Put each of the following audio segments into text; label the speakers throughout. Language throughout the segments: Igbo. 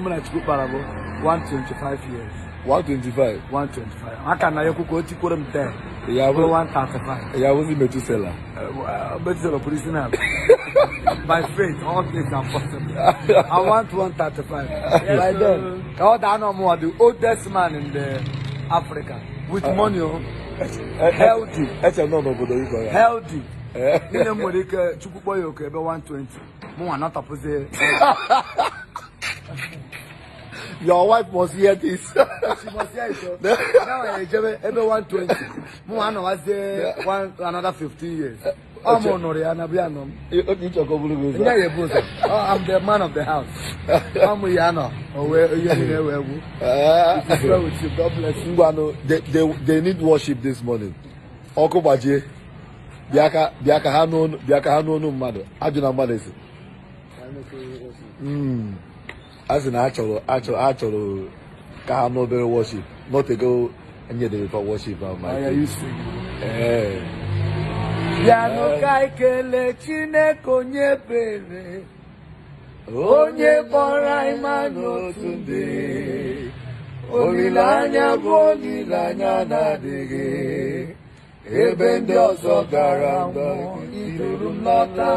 Speaker 1: muna cikin barabo 125 years 125 125 haka na ya kuka oti kurum 10 ya bu 135 ya bu metusela metusela prisoner by faith all things are i want 135 yes, by then ka ọ daa na the oldest man in the africa with uh, money o oh. eh, eh, healthy eche eh, nọ n'obodo igbo ya healthy nne m nwere ike chukwu kpọọ ya oke ebe 120 mụ nwa natapụzie Your wife must hear this. she must hear it. now I eh, enjoy every one twenty. Mo wa na se one another fifteen years. I'm honored and I'm honored. You talk about it. Yeah, yeah, boss. I'm the man of the house. I'm Yana. Oh, where you know where we? Ah, with you. God bless you. Ngwano, they they they need worship this morning. Okobaje. Biaka biaka ha no biaka ha no no mmadụ. Ajụ na mmadụ esi. Mm. as sị na achọrọ achọrọ ka ha n'obere worship nọtego enyedere kwa worship oh, ahụ ya. ka ikele
Speaker 2: chineke onye ebere onye kpọrọ ime ma n'otu ndị
Speaker 3: olileanya bụ anya
Speaker 2: na-adịghị ebe ndị ọzọ gara mba iduru nlọta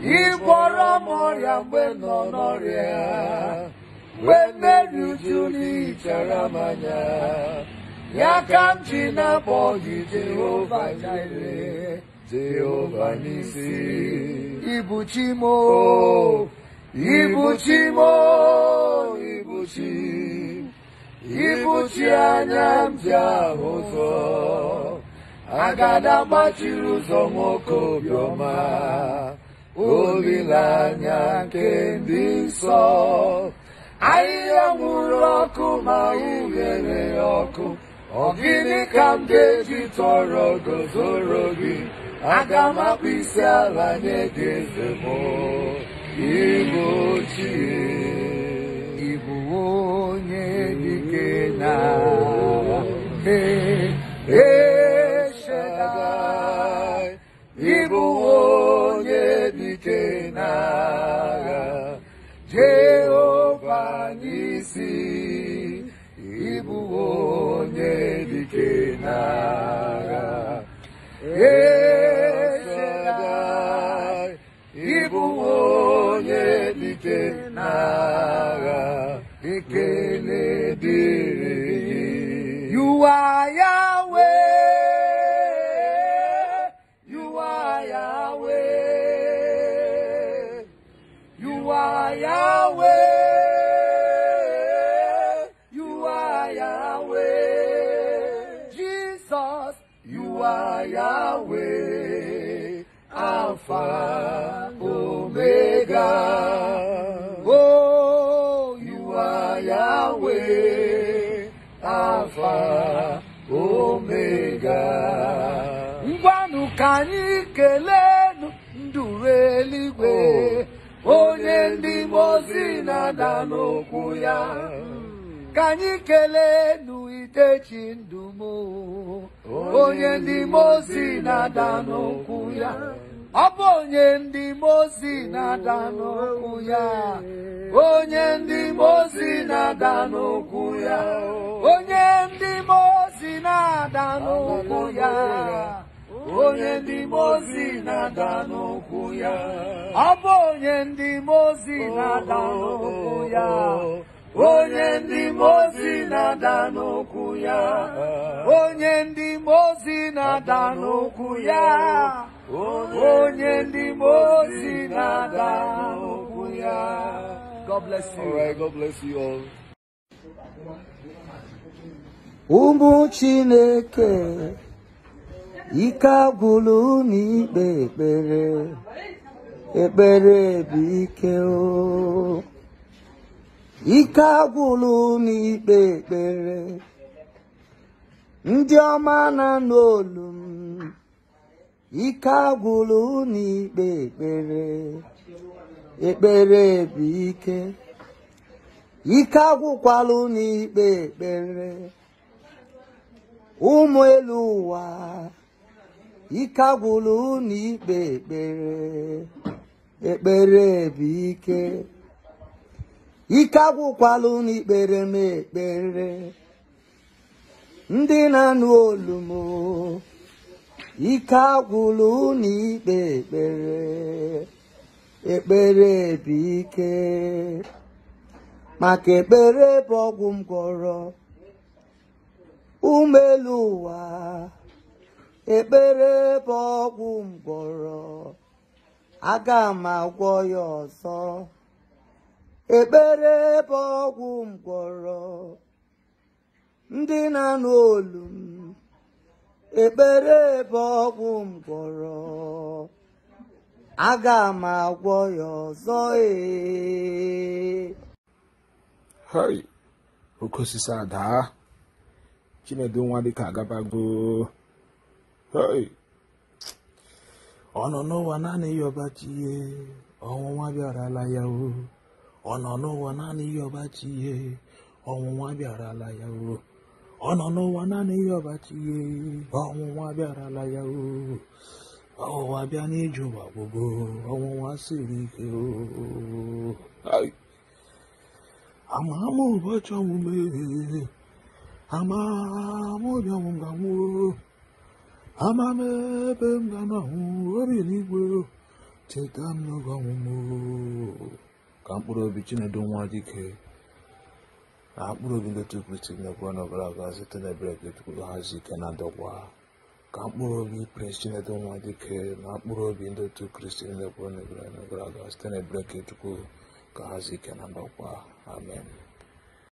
Speaker 2: ịkpọrọ m ọrịa mgbe nọ n'ọrịa mgbe mmeri uju n'ihichara m anya ya ka m ji na-akpọ gị jehova jire jehova n'isi ibuchimo ibuchimo ibuchi ibuchi anya m ji ahụ ụzọ agada gbachiri ụzọ nwoke obiọma olileanya nke ndị nsọ ahịhịa nwụrụ ọkụ ma ughere ọkụ ọ gịnị ka m ga-eji tọrọ gozoro gị aga m akpụ isi ala nye gị eze m ịbụ ochie onye dike na You are Yahweh. You are Yahweh. You are Yahweh. You are Yahweh. Jesus, you are Yahweh. Alpha. ka anyị kelenu nduru eluigwe oh, onye ndị mozi na-ada n'okwu ya ka anyị kelenu itechi ndụ m onye ndị mozi na-ada n'okwu ya ọ bụ onye ndị mozi na-ada n'okwu ya onye ndị mozi na-ada n'okwu ya onye ndị mozi na-ada n'okwu ya onye ndị mozi na-ada n'okwu ya ọ bụ onye ndị mozi na-ada n'okwu ya
Speaker 3: onye ndị mozi na-ada
Speaker 2: n'okwu ya onye ndị mozi na-ada n'okwu ya onye ndị mozi na-ada n'okwu
Speaker 1: ya
Speaker 3: ụmụ Chineke ike agwụlụ na ikpe ekpere ekpere bụ ike o ike agwụlụ na ikpe ekpere ndị ọma na n'olu m ike agwụlụ na ikpe ekpere ekpere bụ ike ike agwụkwalụ na ikpe ekpere ụmụ elu ụwa ike agwụla unu ikpe ekpere ekpere bụ ike ike agwụkwala unu ikpere m ekpere ndị na-anụ olu m ike agwụla unu ikpe ekpere ekpere bụ ike maka ekpere bụ ọgwụ m gwọrọ ụwa ekpere bụ ọgwụ mgbọrọ aga m agwọ ya ọzọ ekpere bụ ọgwụ mgbọrọ ndị na n'olu m ekpere bụ ọgwụ mgbọrọ aga m agwọ ya ọzọ ee
Speaker 1: oke osisi adaa chinedu nwa dịka agabagoo ọ
Speaker 3: nọ n'ụwa naanị ya ọbachi ihe ọnwụnwa bịarala ya o ọ nọ n'ụwa naanị ya ọbachi ihe ọnwụnwa bịarala ya o ọ nọ n'ụwa naanị ya ọbachi ihe ọnwụnwa bịarala ya o ọnwụnwa bịa n'ije ụwa gbogbo ọnwụnwa siri ike o ama ama ụbọchị ọmụme ama ama obi ọnwụ ga nwụọ ama m ebe m ga-anahụ obi n'igwe
Speaker 1: cheta m n'oge ka mkpụrụ obi chinedu nwa dike na mkpụrụ obi ndetu kristi nnekwu ọnọbara aga site n'ebere ka etukwuru hazi ike na dọgwa ka mkpụrụ obi prince chinedu nwa dike na mkpụrụ obi ndetu kristi nnekwu ọnọbara aga site n'ebere ka etukwuru ka hazi ike na dọgwa
Speaker 2: amen